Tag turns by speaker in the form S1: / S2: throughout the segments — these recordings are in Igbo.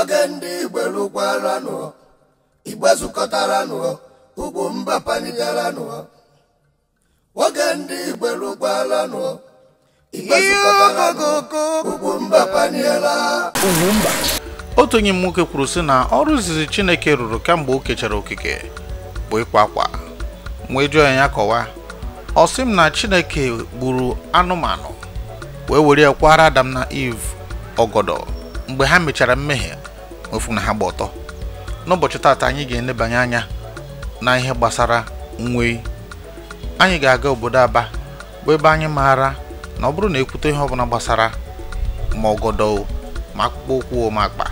S1: oge ndị igbo lụkwaranụ igbe zukọtaranụ ugwu mba panigaranụ oge ndị igbo lụkwaranụ
S2: igbe zukọtaranụ ugwu mba paniela
S1: otu onye m nwoke kwuru sị na ọrụ izizi chineke rụrụ kemgbe o kechara okike bụ ịkwa akwa wee jụọ ya kọwaa ọ sị m na chineke gburu anụmanụ wee were ya kwara adam na eve ọgọdọ mgbe ha mechara mmehie ofu na ha gba ọtọ n'ụbọchị taata anyị ga-enebanye anya na ihe gbasara nwee anyị ga-aga obodo Aba bụ ebe anyị maara na ọ bụrụ na ekwute ihe ọbụla gbasara ma ọgọdọ ma akpụkpọ ụkwụ ma akpa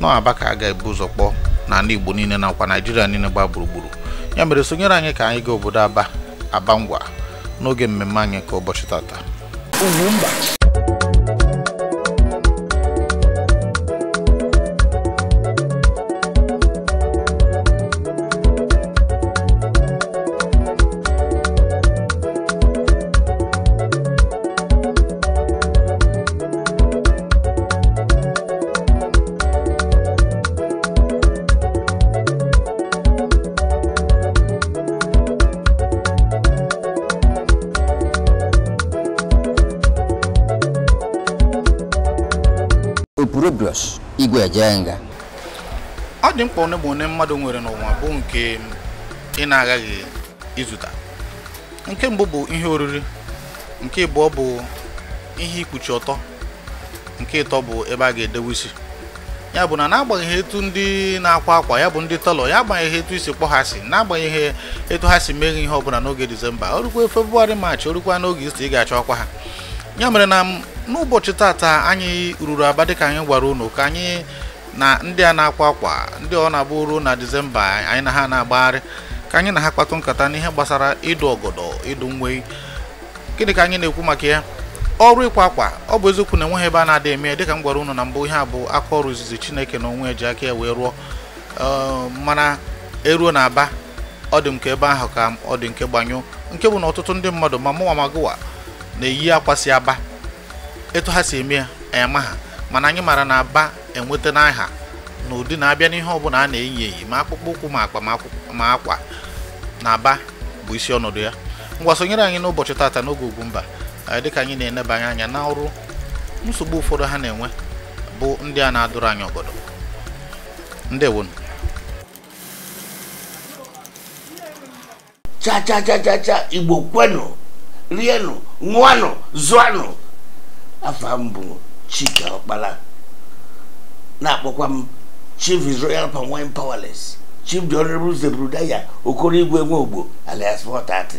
S1: nọ Aba ka a ga-ebu ụzọ kpọọ n'ala Igbo niile nakwa naijiria niile gba gburugburu ya mere sonyere anyị ka anyị gaa obodo Aba Aba ngwa n'oge mmemme anyị nke ụbọchị tata nga ọ dị mkpa one bụ one mmadụ nwere n'ụwa bụ nke ị na-aghaghị ịzụta nke mbụ bụ ihe oriri nke abụọ bụ ihe ikpuchi ọtọ nke ịtọ bụ ebe a ga-edewe isi ya bụ na n'agbanyeghị etu ndị na-akwa akwa ya bụ ndị tọlọ ya agbanyeghị etu isi kpọghasị ha si n'agbanyeghị etu ha si meghe ihe ọbụla n'oge disemba orukwa febụwarị maachị orukwa n'oge isi ị ga-achọ ọkwa ha ya mere na n'ụbọchị tata anyị ruru aba dịka anyị gwara unu ka anyị na ndị a na-akwa akwa ndị ọ na-agba ruo na disemba anyị na ha na-agbagharị ka anyị na ha kpatụ nkata n'ihe gbasara ịdụ ọgọdọ ịdụ nwee gịnị ka anyị na-ekwu maka ya ọrụ ịkwa akwa ọ bụ eziokwu na enweghị ebe a na-adị eme dịka m gwara unu na mbụ ihe a bụ aka ọrụ izizi chineke na onwe ji aka ya wee rụọ ehm, mana eruo na aba ọ dị m ka ebe ahụ ka ọ dị nke gbanyụ nke bụ na ọtụtụ ndị mmadụ ma mụnwa magụwa na-eyi akwa si aba etu ha si eme ya ema ha mana anyị mara na aba enweta n'aha na ụdị na-abịa n'ihe ọbụla a na-eyi eyi ma akpụkpọ ụkwụ ma akpa ma akwa na aba bụ isi ọnọdụ ya ngwa sonyere anyị n'ụbọchị tata n'oge dị dịka anyị na-enebanye anya na ọrụ nsogbu ụfọdụ ha na-enwe bụ ndị a na-adụrụ anyị ọgọdọ cha cha igbo kwenụ rienụ ṅụanụ zụanụ afọ mbụ bụ Chike Ọkpala na-akpọkwa m Chief is Royal Palm Wine Powerless Chief the Honorable Zebrudaya Okoro Igwe ogbo alias Watatị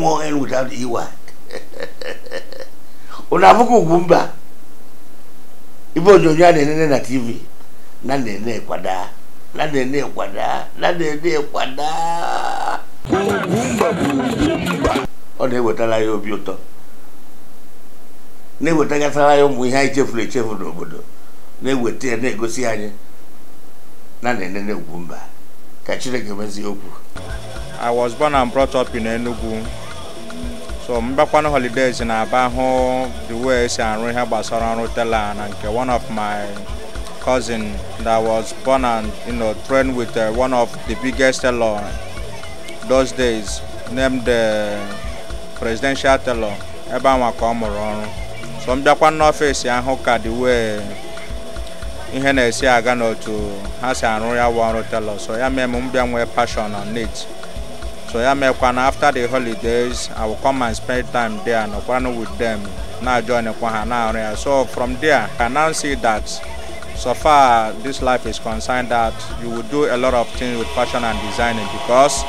S1: MON without EY ụnụ abụghị ugwu mba ibe onyonyo a na-enene na TV na na-ene kwada
S2: na na-ene kwada na na-ene kwada
S1: ọ na-ewetara ya obi ụtọ na-ewetakatara anyị ụmụ ihe anyị chefuru echefu n'obodo na-eweta ya na-egosi
S2: anyị na na ugwu mba ka chineke mezie okwu I was born and brought up in Enugu so mbakwana holidays na aba hụ the way esi arụ ihe gbasara ọrụ tela na nke one of my cousin that was born and you know, trained with uh, one of the biggest tailor those days named the uh, presidential tailor ebe anwa ka ọ mụrụ ọrụ so m bịakwa n'ọfịs ahụ ka dị wee ihe na-esi aga n'otu ha si arụ ya wụ ọrụ telọ so ya mee m m nwee passion on it so ya meekwa na after the holidays I will come and spend time there nọkwanụ with them na-ajoinkwa ha na-arụ ya so from there I now see that so far this life is concerned that you will do a lot of things with fashion and designing because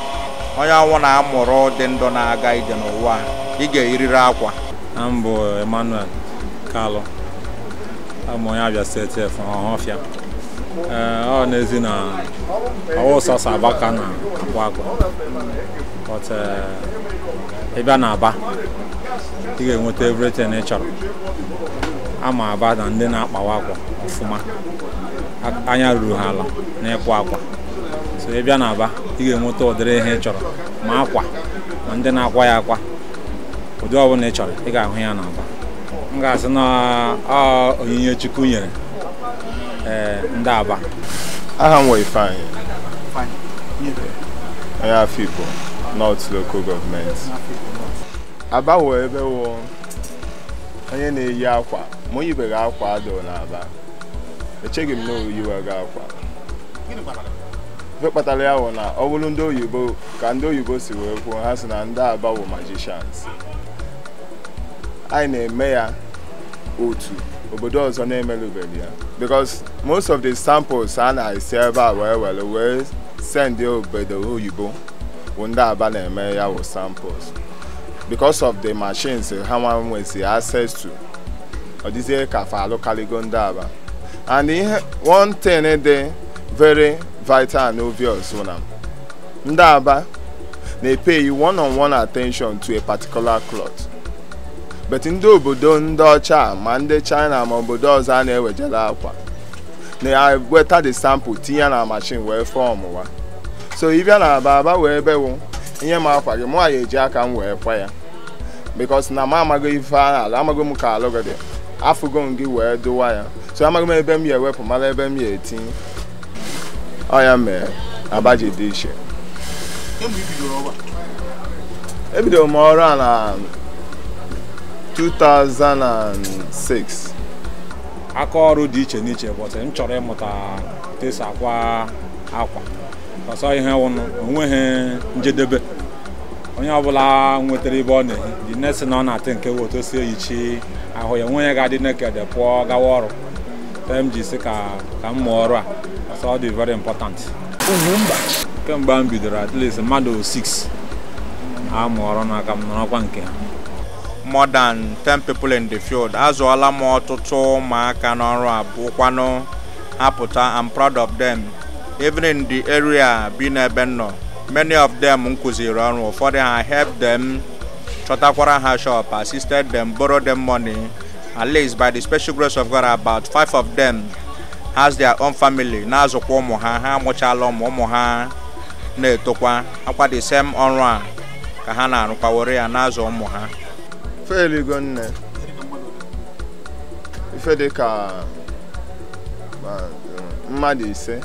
S2: onye ọnwụ na-amụrụ dị ndụ na-aga ije n'ụwa ị ga eriri akwa.
S3: Mbụ Emmanuel Kalụ abụ onye Abia steeti Ọhafịa ọ n'ezi na ọwụsọsọ Aba ka na akwa akwa. but ịbịa na Aba ị ga-enweta everything ị chọrọ ama Aba na ndị na-akpawa akwa ofuma, anya ruru ha ala na-ekwa akwa so ị bịa na Aba ị ga-enweta ụdịrị ihe ị chọrọ ma akwa ma ndị na-akwa ya akwa ụdị ọbụla ị chọrọ ị ga-ahụ ya na Aba m ga-asị na onyinye Chukwu nyere eh,
S4: ndị Aba aha m Ifeanyi onye Afikpo North Local Government Aba wụ ebe wụ onye na-eyi akwa ma o akwa adịghị n'Aba echeghị m na oyiweghị akwa ife kpatara ya wụ na ọ bụrụ ndị oyibo ka ndị oyibo si wee kwuo ha si na ndị Aba wụ magicians anyị na-eme ya O otu obodo ọzọ na-emerụbeghị ya because most of the samples a na-esi ebe a wee were wee sendị obodo oyibo bụ ndị aba na-eme ya wụ samples because of the machines ha nwa nwezi access to ọ dịzie ka fa alụkarịgo ndị aba and ihe one thing dị very vital and obvious na ndị aba na-epeghị one on one attention to a particular cloth bet ndị obodo ndị ọcha ma ndị china ma obodo ọzọ a na-ewejela akwa na weta the sample tinye na machine wee fọọmụ wa so ịbịa na aba aba wee bewu ihe ma akwa gị mụnwa ya eji aka m wee kwa ya because na m amago ife a ala amago m ka alụ gị m gị wee dụwa ya so amaghị m ebe m ewepụ mara ebe m ya etinye ọ ya mere aba ji dị iche ebidoro e m ọrụ a 2006 aka ọrụ dị iche n'iche bọtụ m chọrọ ịmụta
S3: tesa akwa akwa ọsọ ihe wụnụ onweghị njedebe onye ọbụla nwetara ebe ọ na-ehi dị nesi na ọ na-atị nke bụ otu eyichi ahụ ya onwe ya ga-adị nekede pụọ gawa ọrụ m ji ka ka m mụọ ọrụ a ọsọ ọ dị very important kemgbe m bidoro at least mmadụ
S2: 6 a mụọ ọrụ n'aka m n'ọkwa nke ha more than 10 people in the field azụọla m ọtụtụ ụmụaka n'ọrụ abụkwanụ apụta I'm proud of them even in the area bi n'ebe nọ many of them m ọrụ ụfọdụ ha help them chọtakwara ha shop assisted them borrow them money at least by the special grace of God about five of them has their own family na-azụkwa ụmụ ha ha amụchala ụmụ ụmụ ha na-etokwa akwa the ọrụ a ka ha na-arụkwa were ya na ụmụ ha
S4: feligo nne ife dị ka mmadụ ise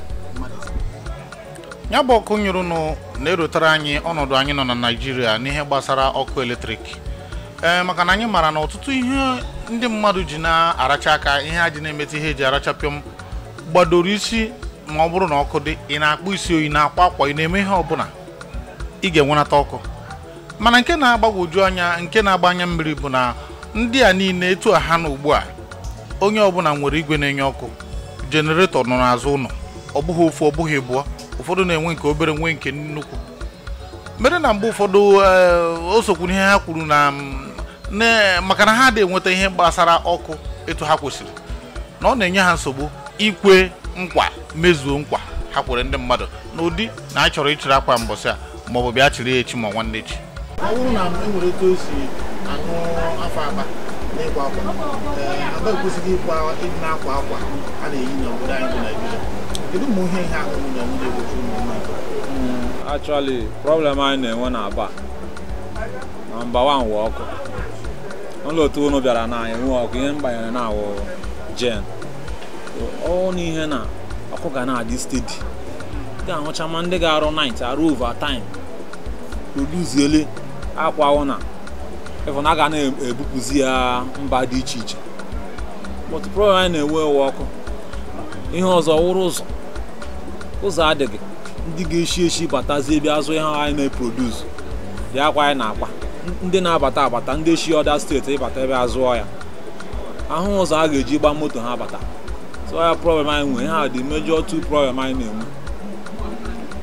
S4: ya bụ ọkụ nyụrụ na-erotara anyị
S1: ọnọdụ anyị nọ na Naịjirịa n'ihe gbasara ọkụ eletrik ee maka na anyị mara na ọtụtụ ihe ndị mmadụ ji na-aracha aka ihe a ji na-emetụ ihe eji arachapịọm gbadoro isi ma ọ bụrụ na ọkụ dị ị na-akpụ isi oyi na-akwa akwa ị na-eme ihe ọbụla ị ga-enwenata ọkụ mana nke na-agbagwoju anya nke na-agba anya mmiri bụ na ndị a niile etu ha na ugbu a onye ọbụla nwere igwe na-enye ọkụ jeneretọ nọ n'azụ ụlọ ọ bụghị ofu ọ bụghị bụọ ụfọdụ na-enwe nke obere nwee nke nnukwu mere na mgbe ụfọdụ eh, o sokwuru ihe ha kwuru na mm, maka na ha adịghị enweta ihe gbasara ọkụ etu ha kwesịrị na ọ na-enye ha nsogbu ikwe nkwa mezuo nkwa ha kwere ndị mmadụ n'ụdị na a chọrọ ịchịrị akwa mbọsị a maọbụ bịa chịrị ya echi ma nwanne echi ọ bụrụ na enwere etu o si aṅụ afọ akpa n'ịkwa akwa aba eh, ekwesịghị ịkwa ịdị na-akwa akwa a na-eyi n'obodo anyị bụ Naijiria kedu mgbe ihe ihe ahụhụ na nwunye egbochi ụmụnwaanyị
S3: hmm, actually problem anyị na-enwe na aba na mba nwa nwe ọkụ n'ụlọ otu unu bịara na anyị nwe ọkụ ihe mgbanyere na awụ jen ọ na ihe na ọkụ ga na-adị stedi ga-ahụcha ma ndị ga-arụ night arụ ova time produziele akwa ụna na ga e, na-ebupụzi ya mba dị iche iche but problem anyị na-enwe ewe ọkụ ihe ọzọ wụrụ ụzọ ụzọ adịghị ndị ga-eshi eshi batazie ebe azụ ihe anyị na-eproduce dị akwa anyị na-akwa ndị na-abata abata ndị eshi ọda steeti ịbata ebe azụọ ya ahụ ụzọ a ga-eji gbaa moto ha bata so ya problem anyị nwere ha dị mejọ tu problem anyị na-enwe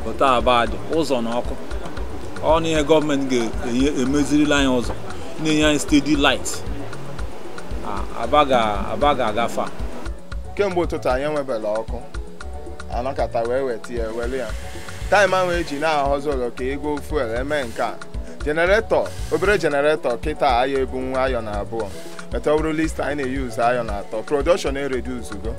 S3: pụta abadị ụzọ na ọkụ ọ na ihe gọọmenti ga-emezirila e-, anyị ụzọ na-enye anyị stedi light aba ga-agafe
S4: kemgbe ụtụtụ anyị enwebela ọkụ anọkata wee weta ya ya taịm ahụ eji na-ahọzi ụlọ ka ego fuel eme nke a jeneretọ obere jeneretọ kịta ayọ ebunwu ayọ na abụọ metabụrụ list anyị na-eyuzu ayọ na atọ production ereduzugo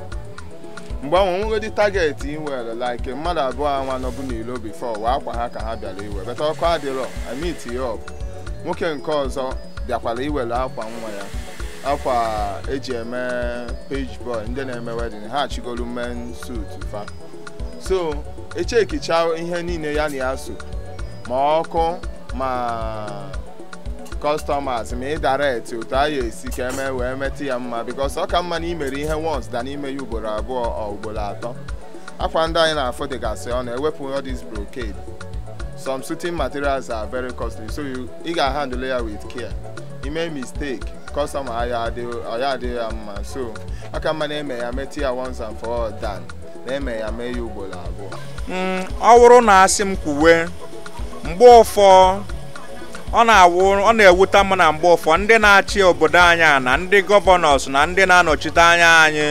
S4: mgbe ahụ nwegodi targeti ị nwere like mmadụ abụọ anwa nọbụ n'ilo bifọ wee akwa ha ka ha bịara iwe bata ọkụ adịrọ amit ya nwoke nke ọzọ bịakwara iwere akwa nwa ya akwa eji eme page boy ndị na-eme wedin ha achigolu men suit fa so echekicha ihe niile ya na ya so ma ọkụ ma customers ma ị direct otu a ya esi ka eme wee metụ ya mma because ọ ka mma na imere ihe once da n'ime ya ugboro abụọ ugboro atọ akwa ndị anyị na-afụ dịgasị ọ na-ewepụ all this brocade some suiting materials are very costly so ị ga-handle ya with care ime mistake customer ya adịghị ya mma so aka mma na-eme ya metụ ya once and for all na-eme ya mee ya ugboro abụọ
S2: mm, ọ wụrụ na asị m kwuwe mgbe ụfọ ọ na-awụ ọ na-ewute m na mgbe ụfọ ndị na-achị obodo anyị na ndị gọvanọs na ndị na-anọchite anya anyị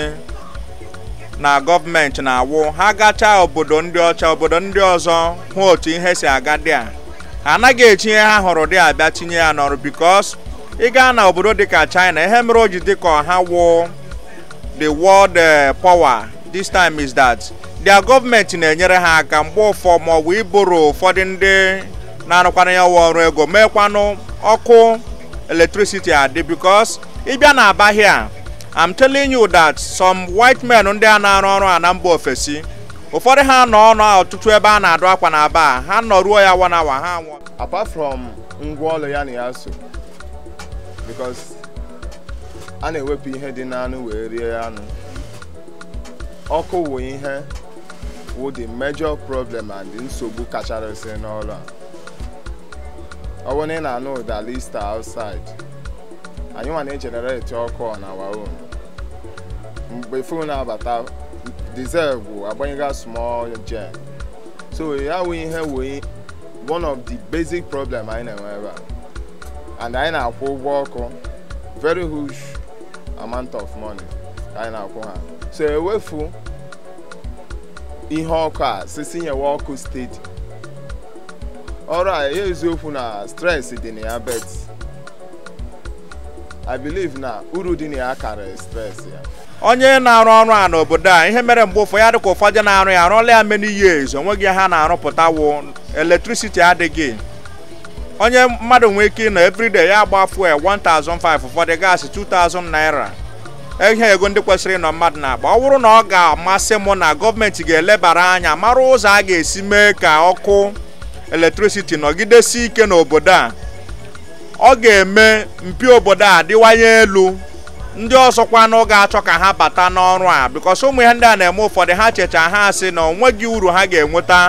S2: na gọọmenti na-awụ ha gachaa obodo ndị ọcha obodo ndị ọzọ hụ otu ihe si aga dị a ha anaghị echi ihe ha hụrụ dị abịa tinye ya n'ọrụ bikos ị gaa na obodo dịka China ihe mere o ji dịka ha wụ the world eh, power this time is that their gọọmenti na-enyere ha aka mgbe ụfọ ma ọ bụ iboro ụfọdụ ndị na-arụkwana ya ụwa ọrụ ego meekwanụ ọkụ electricity adị because ịbịa na aba am I'm telling you that some white men ndị a na-arụ ọrụ a na mba ofesi ụfọdụ ha nọ ọnụ ọtụtụ ebe a na-adụ akwa na aba ha nọ ruo ya one hour ha anwụọ
S4: apart from ngwaọrụ ya na ya so because a na-ewepụ ihe dị n'anụ wee rie anụ ọkụ wụ ihe wụ the major problem and nsogbu kachasị n'ọrụ a ọwụ na ị na-anụ ụda outside anyị nwa na-ejenereti ọkụ on our own mgbe fon abata diesel bụ agbanyega small gen so ya wụ ihe wee one of the basic problem anyị na-enwe ebe a and anyị na-akwụ ụgwọ ọkụ very huge amount of money ka anyị na-akwụ ha so ewefu ihe ọkụ a sisi nyewe ọkụ steeti ọrụ a ya eziokwu na stress dị na ya bet i believe na uru dị na ya karịrị stress ya
S2: onye na-arụ ọrụ a n'obodo a ihe mere mgbe ụfọdụ ya dịka ụfọdụ na-arụ ya arụọla ya many years onweghị ha na-arụpụta wụ adịghị onye mmadụ nwee ike ịnọ everyday ya agba fuel 1005 ụfọdụ gaasị 2000 naira ihe ego ndị kwesịrị ịnọ mmadụ na-agba ọ bụrụ na ọ ga-amasị m na gọọmenti ga-elebara anya mara ụzọ a ga-esi mee ka ọkụ eletriciti nọgidesi ike n'obodo a ọ ga-eme mpi obodo a dịwanye elu ndị ọzọkwanụ ga-achọ ka ha bata n'ọrụ a bikos ụmụ ihe ndị a na-eme ụfọdụ ha checha ha asị na onweghị uru ha ga-enweta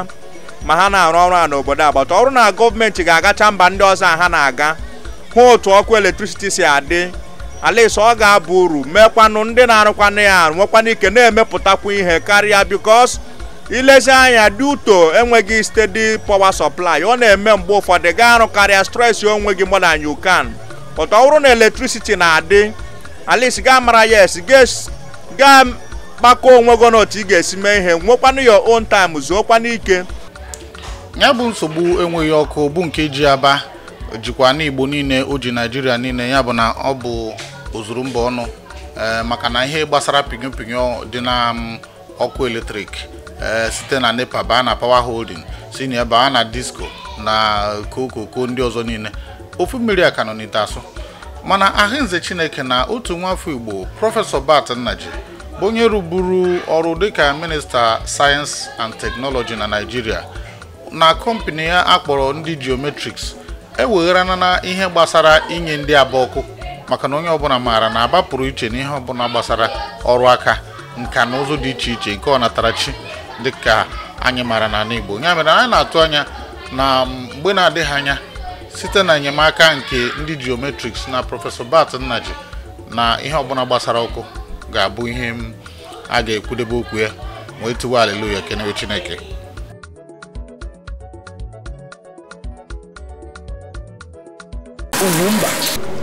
S2: ma ha na-arụ ọrụ a n'obodo agbata ọrụ na gọọmenti ga-agacha mba ndị ọzọ a ha na-aga hụ otu ọkụ eletrisiti si adị alaise ọ ga-abụ uru meekwanụ ndị na-arụkwanụ ya nwekwanụ ike na-emepụtakwu ihe karịa bikos ilezi anya duto enweghị stedi power sọplai ọ na-eme mgbe ụfọdụ gaa arụ karịa stress onwe gị more na you can bụrụ na eletrisiti na-adị at ga gaa mara ya esi gaa kpakọ onwe gị n'otu ị ga-esi mee ihe nwekwanụ your on time zuokwana ike ya bụ nsogbu enweghị ọkụ
S1: bụ nke ji aba jikwa n'igbo niile o ji naijiria niile ya bụ na ọ bụ ozuru mba ọnụ eh, maka na ihe gbasara pinyo pinyo dị na mm, ọkụ eletrik Eh, site na nepa baa na power holding si na baa na disco na kokoko ndị ọzọ niile ofu mmiri a ka nọ n'ite asụ mana ahụnze chineke na otu nwafọ igbo prọfesọ bat nnaji bụ onye rụburu ọrụ dịka minista sayensị and teknọlọji na naijiria na kọmpani ya akpọrọ ndị geometrics ewegharana na ihe gbasara inye ndị aba ọkụ maka na onye ọbụla maara na abapụrụ iche na ihe ọbụla gbasara ọrụ aka nka na ụzụ dị iche iche nke ọnatarachi dịka anyị maara na Igbo ya mere anyị na-atụ anya na mgbe na-adịghị anya site na enyemaka nke ndị geometrics na prọfesọ Bat Nnaji na ihe ọbụla gbasara ọkụ ga-abụ ihe a ga-ekwudebe okwu ya wee tiwa aleluya kenewe Chineke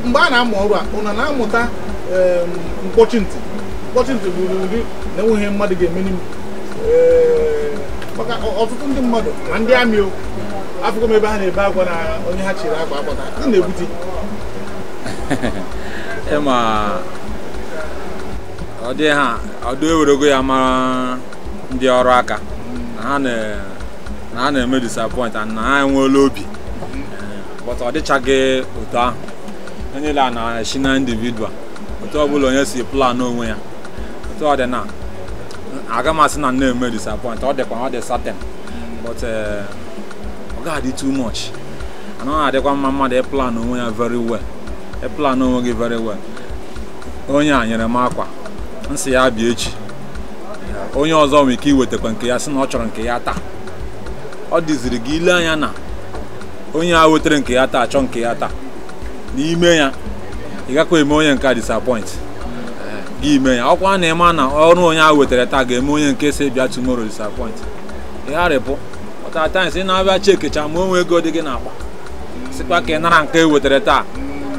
S1: mgbe a na-amụ ọrụ a na-amụta ehm, mkpọchi ntị mkpọchi ntị bụ ụdị na mmadụ ga-emeni maka ọtụtụ ndị mmadụ na ndị amị o m ebe ha na-ebe agwa na onye ha chiri agwa agbata ọ na-ebute
S3: ịma ọ dị ha ọdụ ewerego ya mara ndị ọrụ aka na ha na-eme disappoint na ha enweela obi but ọ dịchaghị otu ahụ onye niile a na-esi na individual otu ọbụla onye si plan onwe ya otu ọ dị na agama si na nne eme disappoint ọ dịkwa ọ dị satin but eh, ọ ga-adị too much ana na-adịkwa mma mmadụ ịplan onwe ya very well ịplan onwe gị very well onye a nyere m akwa nsị ya bịa echi onye ọzọ nwere ike iwetakwa nke ya sị na ọ chọrọ nke ya taa ọ dịziri gị ile anya na onye a wetara nke ya taa achọ nke ya taa n'ime ya ị gakwa eme onye nke a disappoint ime ya ọkwa na ịma na ọrụ onye a wetara taa ga-eme onye nke si bịa tomorrow disappoint ịgharịpụ ọtatimes si na-abịa chekecha ma onwe ego dị gị akpa sikwa ka ị nara nke e wetara taa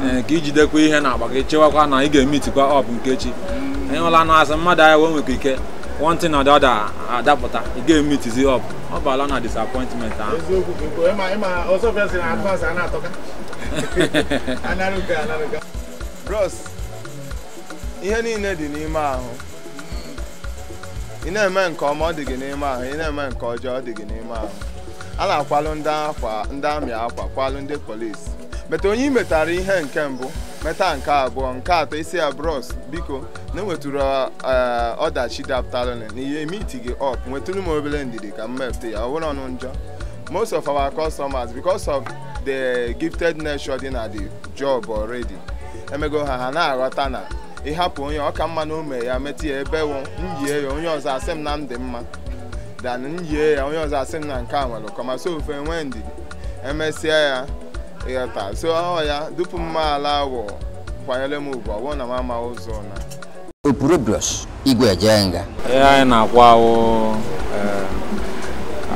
S3: eh, ka ijidekwa ihe na akpa gị chewakwa na ị ga-emitikwa ọp nke chi ịhụla na azụ mmadụ ahịa wee nwekwa ike one na or adapụta ị ga-emitizi ọp ọ bụala na disappointment ahụ
S4: bros ihe niile dị n'ime ahụ ị na-eme nke ọma ọ dị gị n'ime ahụ ị na-eme nke ọjọọ ọ dị gị n'ime ahụ a na-akwalụ ndị amị akwa kwalụ ndị polisi meta onye ị metara ihe nke mbụ meta nke abụọ nke atọ isi ya bros biko na enwetụrụ e, ọdachi dapụtalụ na ihe emiti gị ọp nwetụrụ m obere ndidi ka m mepụta ya ọ bụrụ ọnụ njọ most of our customers because of the gifted nature dị na the job already emego ha ha na-aghọta na ịhapụ onye ọka mma na ume ya metụ ya ebe wụ myie ya onye ọzọ asị m na m dị mma dan myie ya onye ọzọ asị m na nke a nwere kọma so ofe nwee ndidi emesịa ya ịghọta so ọ ya dupu mma ala wụ kwanyere m ugwu ọwụ na m ama ụzọ na
S3: opuro bros igwe jee nga ihe anyị na akwụ awụ eh,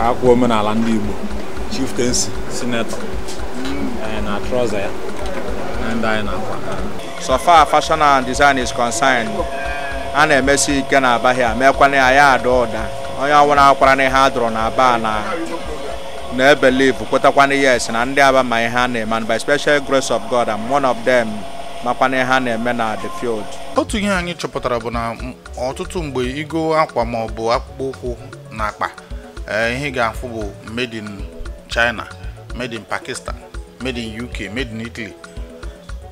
S3: akwa omenala ndị Igbo chieftaincy sinetọ
S2: na trọza ya na ndị anyị na-akwa so far fashion and design is concerned a na-emesi ike na aba ha meekwana ya ya ada ụda onye ọwụrụ akwara na ihe a dụrụ na aba na na ebelive kwetakwana yes na ndị aba ma ihe a na-eme and by special grace of God and one of them makwana ihe a na-eme na the field.
S1: otu ihe anyị chọpụtara bụ na ọtụtụ mgbe igo akwa ma ọ bụ akpụkpọ ụkwụ na akpa eh, ihe ga-afụ bụ made in China made in Pakistan made in UK made in Italy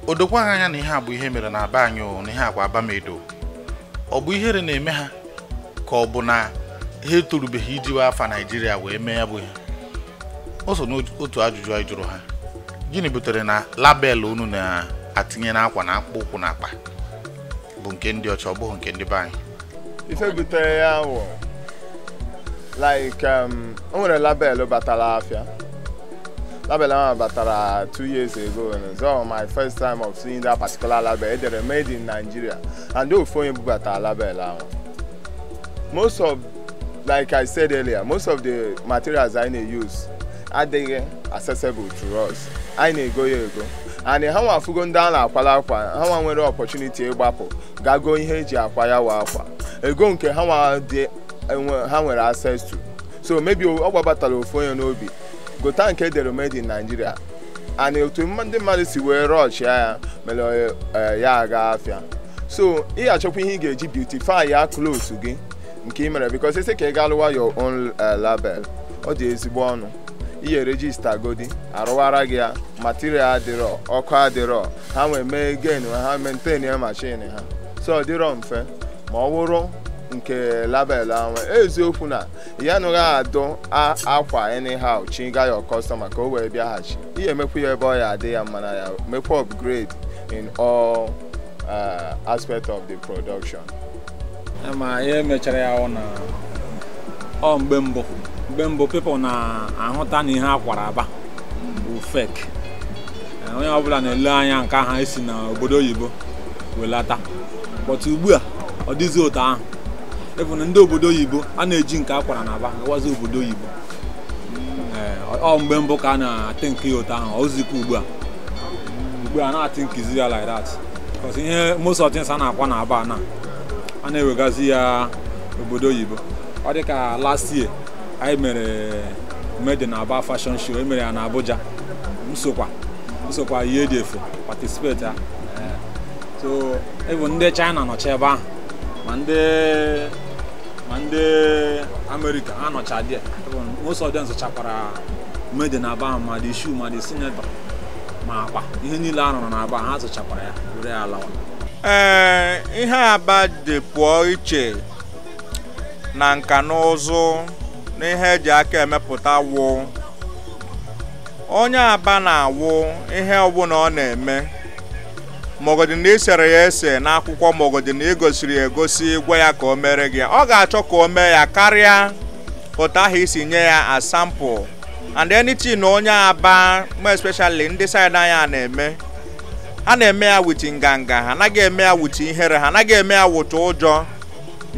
S1: o dokwaghị anya na ihe a bụ ihe mere na aba anyị na ihe agwa abamedo ọ bụ ihere na-eme ha ka ọ bụ na ha etorubeghị ijiwe afa naijiria wee mee ya bụ ihe o n'otu ajụjụ anyị jụrụ ha gịnị butere na label unu na-atinye n'akwa na akpụkpọ ụkwụ na akpa bụ nke ndị ọcha ọ bụghị nke ndị be anyị
S4: ife butere ya wụ um, o nwere label batara afịa Label batara two years ago and so my first time of seeing that particular label edere made in Nigeria and ofu onye bubatara label ahụ most of like I said earlier most of the materials I na-use adịghị accessible to us I na-ego ya ego and ha nwa afụgo ndị ala akwala akwa ha nwa nwere opportunity ịgbapụ gago ihe eji akwa ya wa akwa ego nke ha ha nwere access to so maybe ọ gbabatara ofu onye n'obi gota nke edere made in Nigeria and otu ndị mmadụ si wee rush ya mere e, e, ya aga afịa so ị achọkwa ihe ị ga-eji beautify ya clothes gị nke ị mere because isi ka ị ga lụwa your own e, label ọ dị ezigbo ọnụ ihe regista godi arụwara gị ya material adịrọ ọkụ adịrọ ha nwee mee gain ha maintain ya machine ha so ọ dịrọ mfe ma ọ wụrụ nke label ahụ e eziokwu na ya anụghị adụ akwa anyhow chiga ya customer ka o wee bịaghachi ihe emekwu ya ebe ọ ya adị ya mma na ya mekwa upgrade in all uh, aspect of the production ma ihe mechara ya na
S3: ọ mgbe mbụ mgbe mbụ people na-ahụta na ihe akwara aba bụ fek eh, onye ọbụla na-ele anya nke ha esi na obodo oyibo welata but ugbu a ọ dịzi otu ahụ even ndị obodo oyibo a na-eji nke akwara na aba gawazi obodo oyibo ọ mgbe mbụ ka a na-atị nke ya ụtọ ahụ ozikwa ugbu a ugbu a na-atị nkizi ya like that because ihe most of things a na-akwa na aba na a na-ewegazi ya obodo oyibo ọ dịka ka last year anyị mere made na aba fashion show emere ya na abuja nsokwa nsokwa ihe dị efu participate ha so even ndị china nọcha ebe ahụ ma ndị ma ndị amerịka anọcha n'ụsọ most of them zụchakwara mede na aba ma dị shu ma dị sinetọ ma akpa ihe niile a rụrụ n'aba ha zụchakwara ya were ya
S2: lawa ee ihe aba dị pụọ iche na nka na ụzụ na ihe eji aka emepụta wụ onye aba na-awụ ihe ọbụla ọ na-eme maọgọdị na ya ese n'akwụkwọ maọgọdị na egosiri ya egosi gwa ya ka o mere gị ọ ga-achọ ka o mee ya karịa otu ha isi nye ya asampụ and anything na onye aba m especially ndị saịdị anya na-eme ha na-eme ya wit nganga ha anaghị eme ya wit ihere ha anaghị eme ya wit ụjọ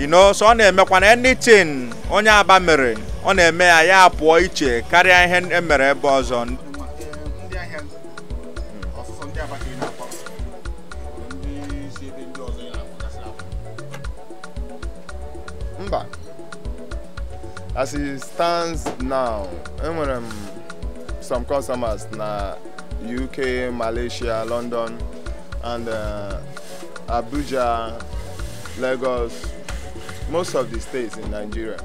S2: inoso so ọ na-emekwa na anything onye aba mere ọ na-eme ya ya pụọ iche karịa ihe emere ebe ọzọ
S4: as it stands now enwere m some customers na uk malaysia london and uh, abuja lagos most of the states in nigeria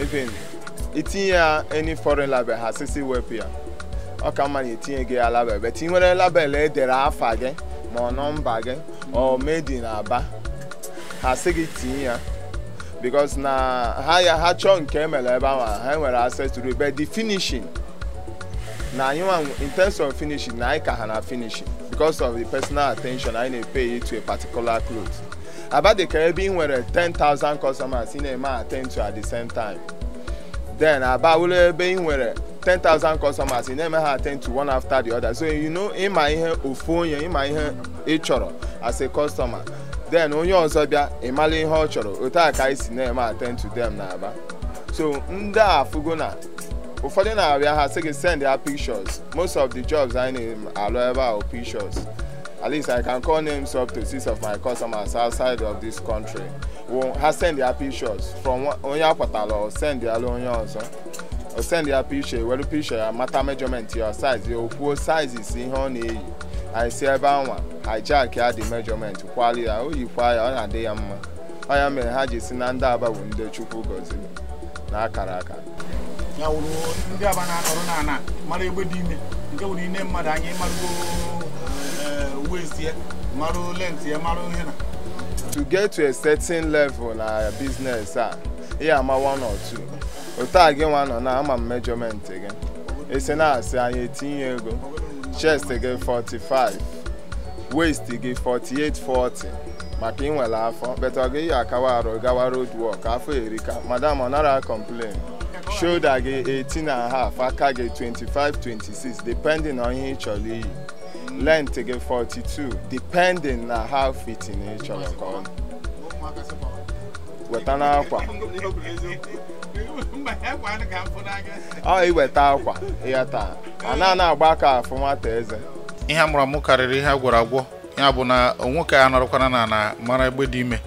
S4: even itinye ya any foreign label ha sisi wepụ here, ọ ka mma na itinye gị ya label but ị nwere label edere afa gị ma ọ nọmba gị ọ made in aba ha sị gị tinye ya because na ha ya ha chọọ nke emere ebe ahụ ha nwere access to it but the finishing na anyị nwa in terms of finishing na anyị ka ha na finishing because of the personal attention anyị na-epay to a particular cloth abadịka ebe ị nwere 10,000 customers ị na-eme attend to at the same time then aba wụrụ ebe ị nwere 10,000 customers ị na-eme ha attend to one after the other so you know ịma ihe ofu onye ịma ihe ị chọrọ as a customer then onye ọzọ bịa ịmala ihe ọ chọrọ otu a ka anyị si na-eme attend to them na aba so ndị a afụgo na ụfọdụ na-abịa ha sị gị send ha pictures most of the jobs anyị na-alụ ebe ahụ pictures at least i can call names up to six of my customers outside of this country ha send ya pictures from onye akwatara ọ send ya lụ onye ọzọ ọ send ya picture were picture ya mata measurement ya size ya o kwuo sizes ihe ọ na-eyi anyị si ebe anwa hijack ya dị measurement kwalu ya o yikwa ya ọ na-adị ya mma ọ mere ha ji si na ndị aba bụ ndị chukwu gọziri na akara aka
S1: ndị aba na-akọrọ na mara egbe dị ime nke wụrụ ine mmadụ anyị marụgo uwe eh, isi ya marụ lenti ya marụ ihe na
S4: to get to a certain level na business a ihe ama one or two otu a gị nwa nọ na ama m measurement gị esi na-asị anyị etinye ego chest again 45 waist again 48 40 maka ịnwere afọ but ọ gị akawa arụ gawa road work afọ erika madam ọ nara complain shoulder gị 18 and a half aka gị 25 26 depending on ihe ị chọrọ iyi length gị 42 depending na how fitting ị chọrọ ka ọ
S1: weta n'akwa
S4: ọ iweta akwa taa a na na agba aka afụma nwata eze
S1: ihe a mụrụ karịrị ihe a agwọ ya bụ na nwoke a nọrọkwana na na mara egbe dị ime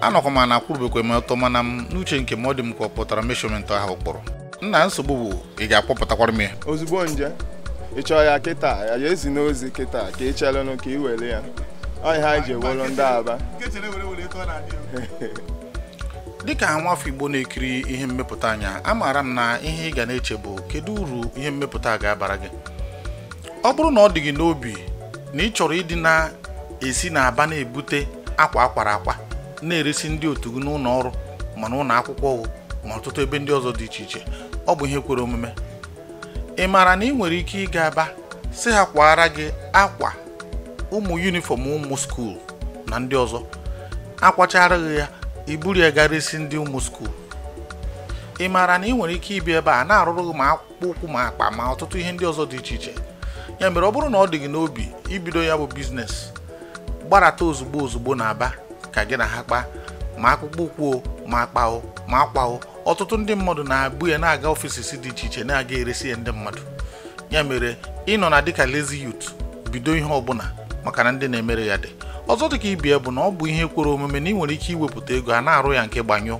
S1: anọkwa m na akwụrụbekwa m ọtọ mana m n'uche nke m ọ dị m ka ọ pụtara meshọmentị ahụ kpọrọ nna nsogbu bụ ị ga-akpọpụtakwara m ya
S4: ozugbo nje ị chọọ ya kịta ya ezi n'ozi kịta ka ị chelenụ ka ị were ya ọ ihe anyị ji ndị aba
S1: dịka nwafọ igbo na-ekiri ihe mmepụta anya amaara m na ihe ị ga na-eche bụ kedu uru ihe mmepụta ga-abara gị ọ bụrụ na ọ dị gị n'obi na ị chọrọ ịdị na-esi na aba na-ebute akwa akwara akwa na-eresi ndị otu gị n'ụlọ ọrụ ma n'ụlọ akwụkwọ ma ọtụtụ ebe ndị ọzọ dị iche iche ọ bụ ihe kwere omume ị maara na ị nwere ike ịga aba si ha kwara gị akwa ụmụ yunifọm ụmụ skuul na ndị ọzọ akwachara gị ya iburu ya gara isi ndị ụmụ skuul ị maara na ị nwere ike ibi ebe a na-arụrụ ma akpụkpọ ụkwụ ma akpa ma ọtụtụ ihe ndị ọzọ dị iche iche ya mere ọ bụrụ na ọ dị gị n'obi ibido ya bụ biznes gbarata ozugbo ozugbo na aba ka gị na ha kpaa ma akpụkpọ ụkwụ ma akpao ma akwao ọtụtụ ndị mmadụ na-abụ ya na-aga si dị iche iche na-aga eresi ya ndị mmadụ ya mere ịnọ na dịka lezi youth bido ihe ọbụla maka na ndị na-emere ya dị ọzọ dịka ibie bụ na ọ bụ ihe kwere omume na ị nwere ike iwepụta ego a na-arụ ya nke gbanyụ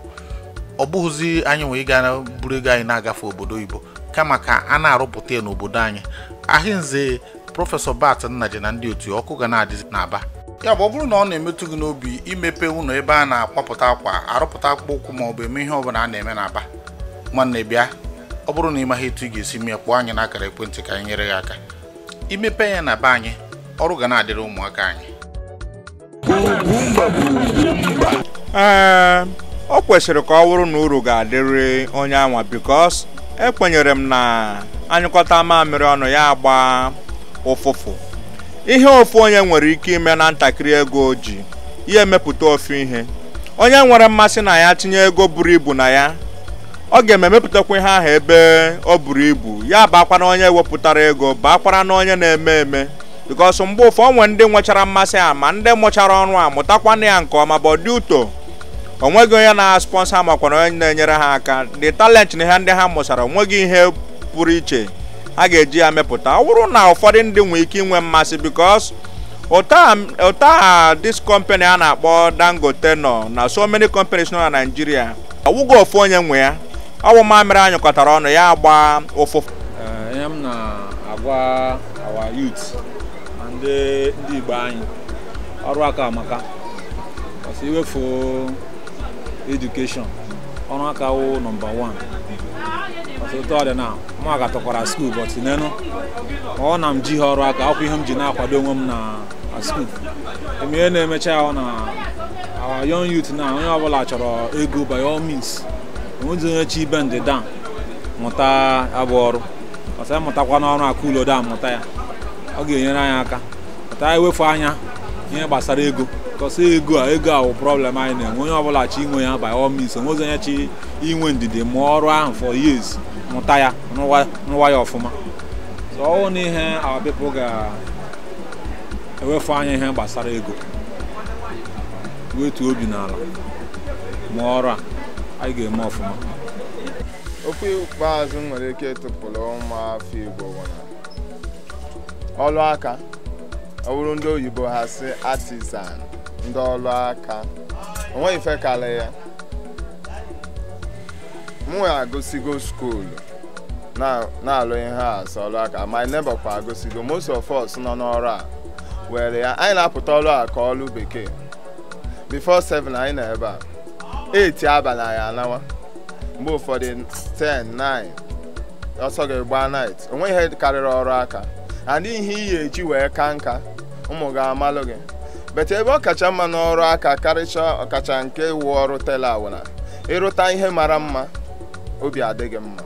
S1: ọ bụghịzi anyị nwee ịga buru ego anyị na-agafe obodo oyibo kama ka a na-arụpụta ya n'obodo anyị ahịnze prọfesọ bat nnaji na ndị otu ọkụ ga na-adịzi n'aba ya bụ ọ bụrụ na ọ na-emetụ gị n'obi imepe ụlọ ebe a na-akwapụta akwa arụpụta akpụkpọ ụkwụ ma ọ bụ eme ihe ọbụla a na-eme n'aba nwanne bịa ọ bụrụ na ị maghị etu ị ga-esi mee kpọọ anyị n'akara ekwentị ka anyị nyere gị aka imepe ya na be anyị ọrụ ga na-adịrị ụmụaka anyị
S2: ee o kwesịrị ka ọ wụrụ na uru ga-adịrị onye anwa bikos ekwenyere m na anyịkọta mamịrị ọnụ ya agba ụfụfụ ihe ofu onye nwere ike ime na ntakịrị ego o ji ya emepụta ofu ihe onye nwere mmasị na ya tinye ego buru ibu na ya ọ ga ememepụtakwa ihe ahụ ebe o buru ibu ya bakwara onye wepụtara ego bakwara na onye na-eme eme bikos mgbe ụfọ onwe ndị nwechara mmasị a ma ndị mụchara ọnụ a mụtakwana ya nke ọma bụ dị onweghị onye na-aspọnsa makwana onye na-enyere ha aka dị talenti na ha ndị ha mụsara onweghị ihe pụrụ iche a ga-eji ya mepụta ọ bụrụ na ụfọdụ ndị nwe ike inwe mmasị bikos ụta ha dis company a na-akpọ dangote nọ na so many companies nọ na naijiria ọwụgo ofu onye nwe ya ọwụ mamịrị anyụkọtara ọnụ ya agba ụfụfụ
S3: ihe m na-agwa our youth ndị Igbo anyị ọrụ aka amaka ọsọ iwefu edukeshọn ọrụ aka wụ nọmba wan 1 ọtụtụ ọdịnala mụ ga tọkwara skuul bọtụ n'enu ọ na m ji ha ọrụ aka akwụ ihe m ji na-akwado onwe m na skuul emeghe na-emecha ya na awa yọn youth na onye ọbụla chọrọ ego by all means onwezi onye chi ibe ndịda mụta abụ ọrụ ọsọ mụtakwa n'ọrụ aka ulodo a mụta ya ọ ga-enyere anyị aka ka anyị e wefu anya ihe gbasara ego kọsị ego a ego a bụ problem anyị na-enwe onye ọbụla chi inwe ya by all means onwezi onye chi inwe ndidi ma ọrụ ahụ for years mụta ya rụwa ya ọfụma so ọwụ na ihe our ga-ewefu anya ihe gbasara ego wetu obi n'ala ma ọrụ a anyị ga-eme ọfụma
S4: okwu ikpeazụ nwere ike tụpụrụ ụmụ Igbo ọrụ aka ọ ndị oyibo ha si artisan ndị ọrụ aka onweghị ife kalị ya m nwee agụsigo skuulu na-alụ ihe a ọrụ aka my neighbor kwa agosigo most of us nọ n'ọrụ a were ya anyị na-apụta ọrụ a ka bekee before 7 anyị na ebe a 8 abalị anyị anawa mgbe ụfọdụ 10 9 ọsọ ga-egba night onweghị ihe karịrị ọrụ aka and ihe iyi eji wee ka nka ụmụ ga amalụ gị bete ebe ọ kacha mma n'ọrụ aka karịcha ọkacha nke wụ ọrụ tela awụna ịrụta ihe mara mma obi adịghị mma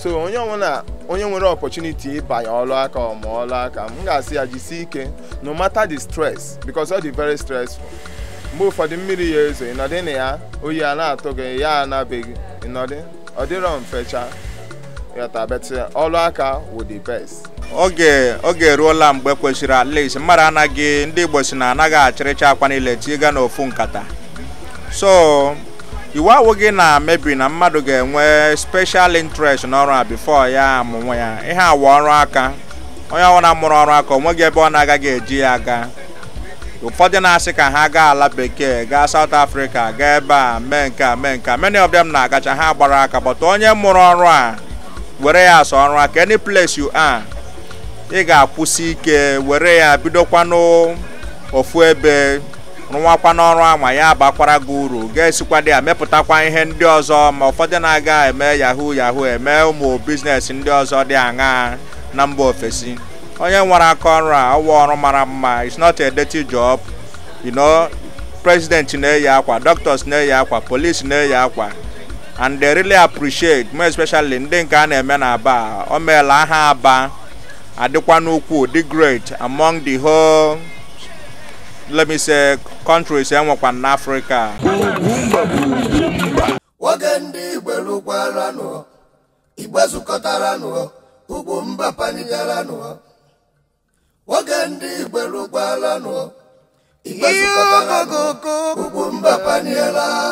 S4: so onye ọbụla onye nwere opọchuniti ịbanye ọlụ aka ọma ọlụ aka m ga-asị ya jisi ike no matter the stress because ọ dị very stressful mgbe ụfọdụ mmiri ya ezo ịnọdị na ya oyi a na-atụ gị ya anabeghị ịnọdị ọ dịrọ mfecha yọta beti ọlụ aka wụ the best
S2: oge oge eruola mgbe kwesịrị at least mmadụ anaghị ndị igbo si na anaghị achịrịcha akwa niile tiga n'ofu nkata so iwu awụghị na amebi na mmadụ ga-enwe special interest n'ọrụ a before ya amụnwa ya ihe awa ọrụ aka onye ọbụla mụrụ ọrụ aka gị ebe ọ na-agaghị eji ya aga ụfọdụ na-asị ka ha gaa ala bekee gaa saut afrịka gaa ebe a mee nke a mee nke a many na-agacha ha gbara aka but onye mụrụ ọrụ a were ya asa ọrụ aka any place you are ị ga-akwụsị ike were ya bidokwanụ ofu ebe rụwakwa n'ọrụ a ma ya abakwara gị uru ga-esikwado ya mepụtakwa ihe ndị ọzọ ma ụfọdụ na-aga eme yahoo yahoo eme ụmụ biznes ndị ọzọ dị aṅaa na mba ofesi onye nwere aka ọrụ a ọwa ọrụ mara mma it's not a dirty job you know president na-eyi akwa doctors na-eyi akwa police na-eyi akwa and they really appreciate more especially ndị nke a na-eme na aba o meela aha aba adịkwa n'ukwu dị great among the whole let me say countries enwekwa n'afrịka
S4: nwoke ndị
S1: igberugwaranụ igbe zukọtaranụ ugwu mba panigaranụ
S4: nwoke ndị igberugwaranụ igbe zukọtaranụ ugwu mba paniela